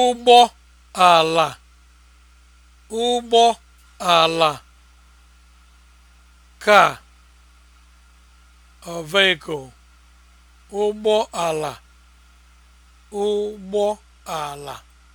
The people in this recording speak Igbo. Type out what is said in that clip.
ụgbọ ala ụgbọ ala car or vehicle ụgbọ ala ụgbọ ala